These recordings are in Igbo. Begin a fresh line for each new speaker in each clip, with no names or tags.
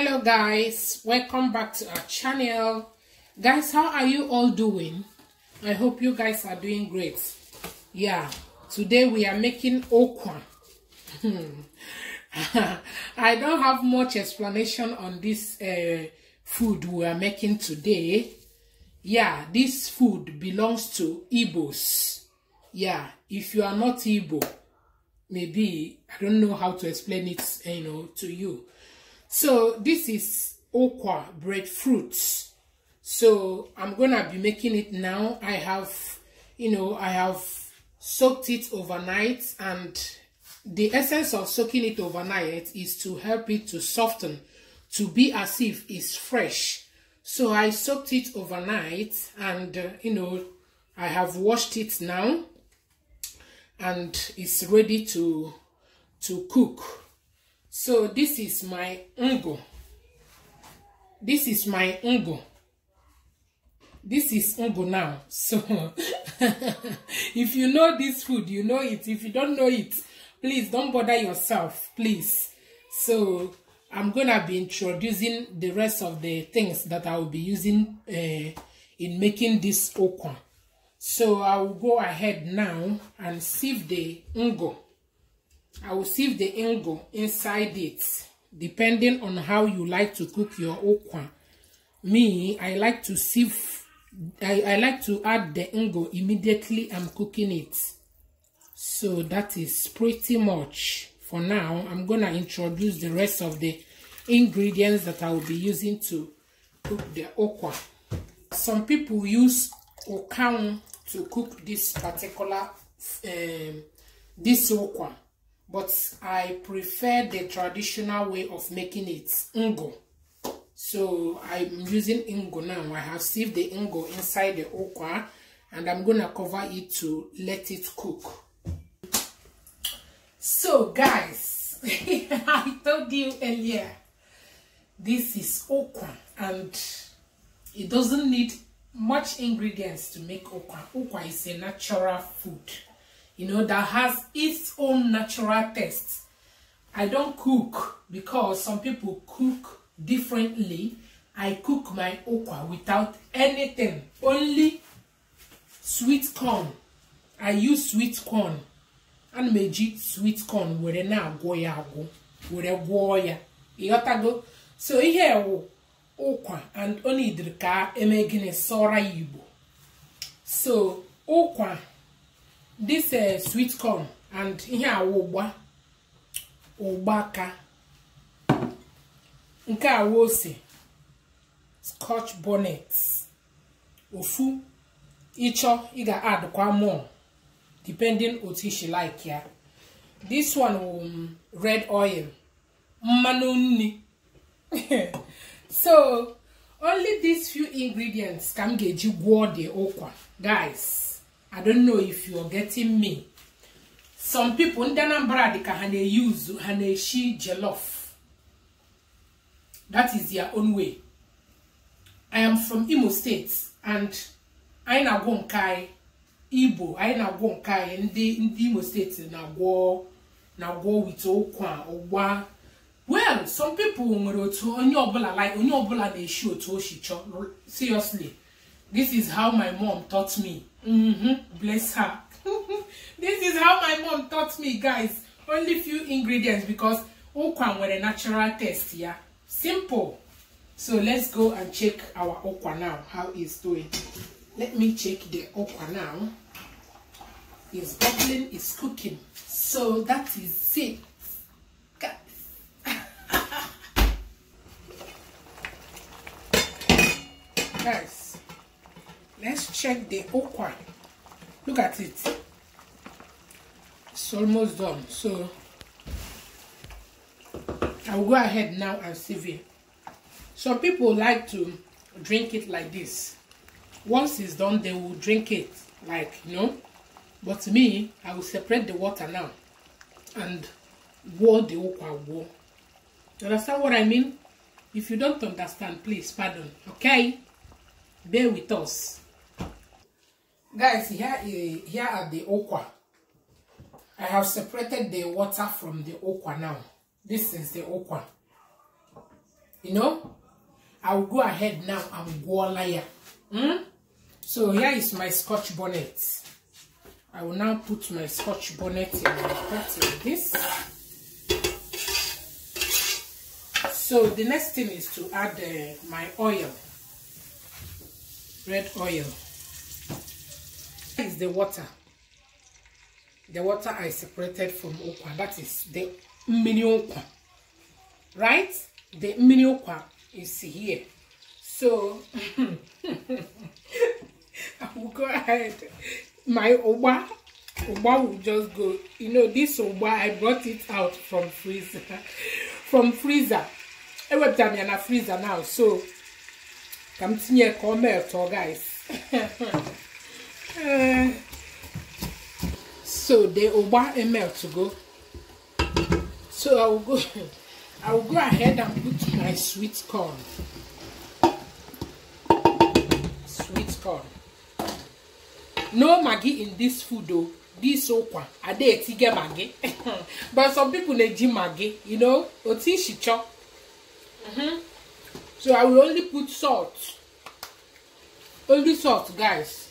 hello guys welcome back to our channel guys how are you all doing i hope you guys are doing great yeah today we are making okra i don't have much explanation on this uh, food we are making today yeah this food belongs to Ibo's. yeah if you are not Igbo maybe i don't know how to explain it you know to you so this is okwa breadfruit. So I'm gonna be making it now. I have, you know, I have soaked it overnight and the essence of soaking it overnight is to help it to soften, to be as if it's fresh. So I soaked it overnight and, uh, you know, I have washed it now and it's ready to, to cook. So this is my ungo This is my ungo This is ungo now. So if you know this food, you know it. If you don't know it, please don't bother yourself, please. So I'm going to be introducing the rest of the things that I will be using uh, in making this okon. So I will go ahead now and sieve the ungo I will sieve the ingo inside it depending on how you like to cook your okwa. Me, I like to sieve, I, I like to add the ingo immediately I'm cooking it. So that is pretty much for now. I'm going to introduce the rest of the ingredients that I will be using to cook the okwa. Some people use okaun to cook this particular, um, this okwa but I prefer the traditional way of making it, ngo. So I'm using ingo now. I have sieved the ingo inside the okra and I'm going to cover it to let it cook. So guys, I told you earlier, this is okra and it doesn't need much ingredients to make okra. Okra is a natural food you know, that has its own natural taste. I don't cook because some people cook differently. I cook my okwa without anything, only sweet corn. I use sweet corn. and meji sweet corn were na-agwọ ya agwọ were gwọọ ya go. so here, wụ ụkwa and only nidiri ka eme gịnị sọra ya so ụkwa this uh, sweet corn and ihe awụ ụgba ụgbaka nke awụ ose scotch bonnet ofu ịchọ ị ga-adụkwa more depending otu ishi like ya this one um, red oil mmanụ nri so only these few ingredients ka m ga-eji gwụọ dị ụkwa guys i don't know if you are getting me some people ndị Anambra dị ka ha na uzu ha na-eshi jollof that is their own way i am from Imo State and anyị na-agwọ nke anyị Igbo anyị na-agwọ nke anyị ndị ndị Imo State na-agwọ na-agwọ wit ụkwa ụgba well some people nwere otu onye ọbụla like onye ọbụla na-eshi otu o si seriously this is how my mom taught me Mm-hmm. Bless her. this is how my mom taught me, guys. Only few ingredients because okwa were a natural taste, yeah. Simple. So let's go and check our okwa now, How is doing. Let me check the okwa now. It's bubbling, it's cooking. So that is it. Guys, check the okra look at it it's almost done so I'll go ahead now and sieve it some people like to drink it like this once it's done they will drink it like you know but me I will separate the water now and war the okra war you understand what I mean if you don't understand please pardon okay bear with us Guys, here, is, here are the okwa. I have separated the water from the okwa now. This is the okwa. You know? I will go ahead now and go layer. Hmm? So here is my scotch bonnet. I will now put my scotch bonnet in like this. So the next thing is to add uh, my oil, red oil. is the water. The water I separated from okwa. That is the mini okwa. Right? The mini okwa is here. So, I will go ahead. My oba, oba will just go. You know, this oba, I brought it out from freezer. from freezer. I went down in a freezer now. So, come to me, come here, guys. Eh. so they will want a ml to go. So I will go. I will go ahead and put my sweet corn. Sweet corn. No maggi in this food though. This okwa. Ade etige maggi. But some people they ji maggi. You know, oti shicho. Mm -hmm. So I will only put salt. Only salt, guys.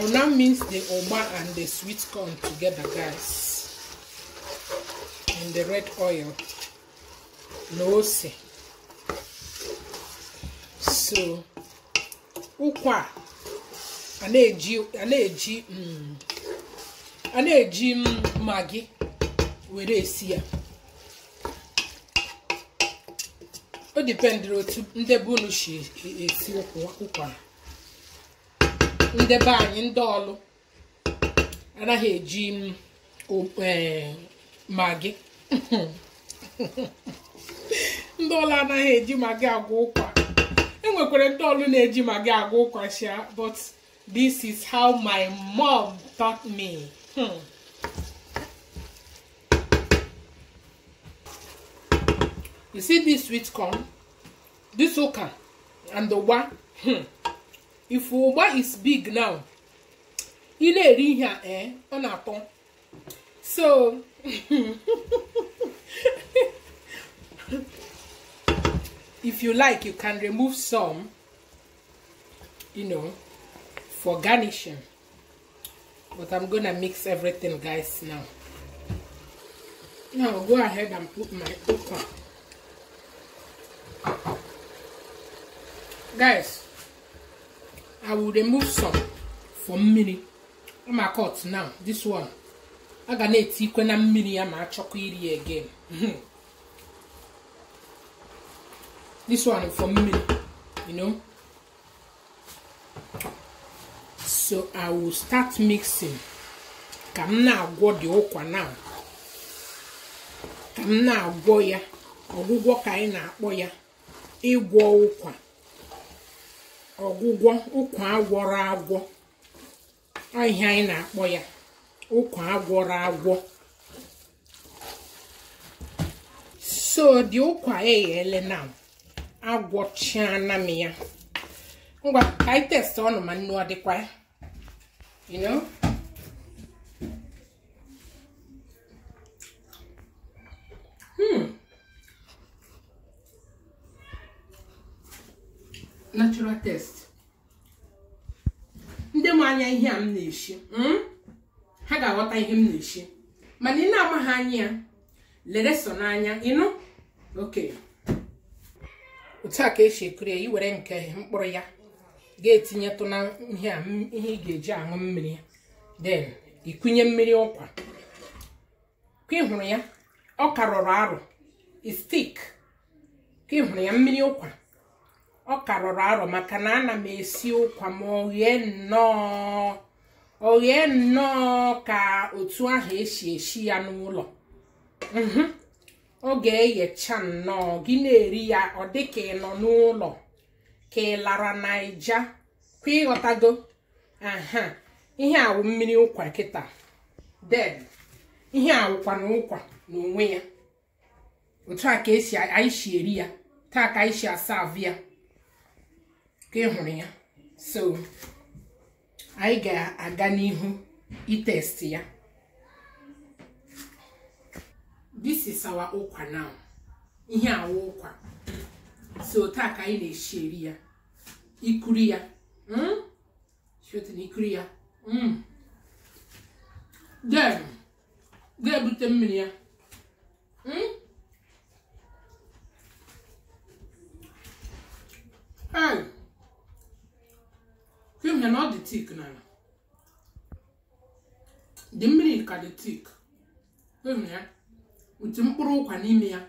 I will now mix the oma and the sweet corn together, guys. And the red oil. No say. So, ukwa. A na-eji a na-eji maggi were esi ya. O dipendịrị otu ndị be unu e, e, si esi ụkwa. ndebe anyị ndị ọlụ anaghị eji e, magị ndị ọlụ anaghị eji magị agwa ụkwa enwekwara ndị ọlụ na-eji magị agwa ụkwa shia but this is how my mom taught me hmm. you see this sweet corn this ụka and the one hmm. if ụgba is big now ị na-eri ihe a ee eh, ọ na-atọ so if you like you can remove some you know for garnishing but i'm gonna mix everything guys now now go ahead and put my okra guys i will remove some for mmiri ma cut now this one a ga na-etikwe na mmiri ya ma achọkwa iri again mhm. this one for mmiri you know so i will start mixing ka m na-agwọ dị ụkwa now ka m na-agwọ ya ọgwụgwọ ka anyị na-akpọ ya ịgwọ ụkwa ọgwụgwọ ụkwa agwọrọ agwọ ahịa anyị na-akpọ ya ụkwa agwọrọ agwọ so dị ụkwa eghele na agwọchiana m ya ngwa ka ọnụ ma nnu ọ dịkwa ya you grammar test ndị ma anya ihe a m na-eshi hmm? ha ga-aghọta ihe m na-eshi mana ị na-amaghị anya ya lere na n'anya ịnụ oke otu a ka esi ekiri ya iwere nke mkpụrụ ya ga-etinyetụ na ihe a ihe ị ga-eji aṅụ mmiri den ikunye mmiri ụkwa ka ị hụrụ ya ọ karọrọ arụ istik ka ị hụrụ ya mmiri ụkwa ọ karọrọ arọ maka na ana m esi ụkwa ma oghee nnọọ oghee nnọọ ka otu ahụ esi esi ya n'ụlọ mhm. ọ ga-eghecha nnọọ gị na-eri ya ọ dị ka ị nọ n'ụlọ ka ị lara naija kwa ịghọtago aha ihe awụ mmiri ụkwa kịta den ihe awụkwa na ụkwa n'onwe ya otu a ka esi anyị si eri ya taa ka anyị si asa avụ ya ka ị hụrụ ya so anyị ga-aga n'ihu itest ya this is our ụkwa now ihe awa ụkwa so taa ka anyị na-esi eri ya ikuri ya hmm? ikuri ya hmm. ga-ebute mmiri ya hmm? Hey! fim ya na ọ dị tik n'ala dị mmiri ka dị tik fim ya otu mkpụrụ ụkwa n'ime ya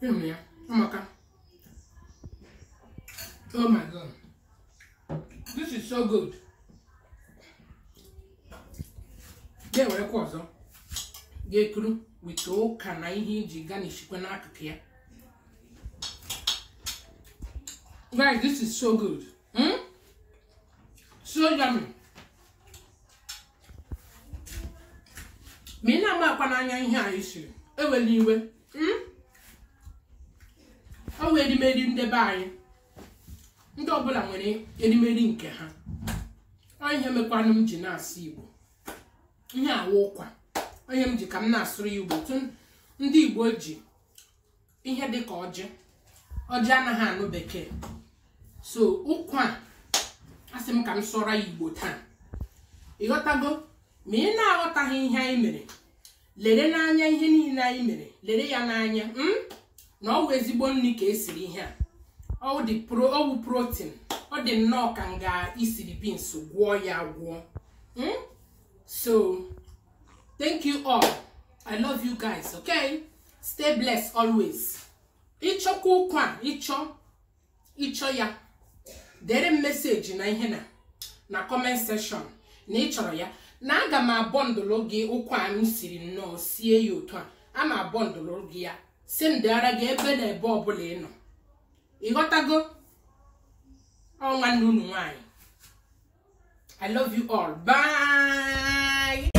fim ya amaka oh my god this is so good ga-ewerekwa ọzọ ga-ekuru weta ụka na ihe iji ganishikwa n'akụkụ ya Guys, this is so good. Hmm? So yummy. ma ị na-amakwa anya ihe anyị siri ewela iwe ọ hmm? wee edimeri ndebe anyị ndị ọbụla nwere edemede nke ha ọ ihe mekwanụ m ji na-asụ igbo ihe awa ụkwa ihe m ji ka m na-asụrụ igbo ndị igbo ji ihe dị ka ọjị ọjị anaghị anụ bekee so nkwa a asị m ka m sụọra igbo taa ịghọtago ma ị na-aghọtaghị ihe anyị mere lere n'anya ihe niile anyị mere lere ya n'anya hmm? na ọwụ ezigbo nri ka esiri ihe a ọwụ protein ọ dị nnọọ ka nga ga-isiri beans gwọọ ya gwọọ hmm? so thank you all i love you guys okay stay blessed always ịchọkwa ụkwa ịchọ ịchọ ya dere m meseji na ihe na na kọment sekshọn na ị chọrọ ya na aga m abọndụlụ gị ụkwụ anyị siri nnọọ sie ya otu a ama abọndụlụ gị ya si ndịara gị ebe na ebe ọbụla ị nọ ịghọtago ọnwa nwanne unu nwanyị i love you all bye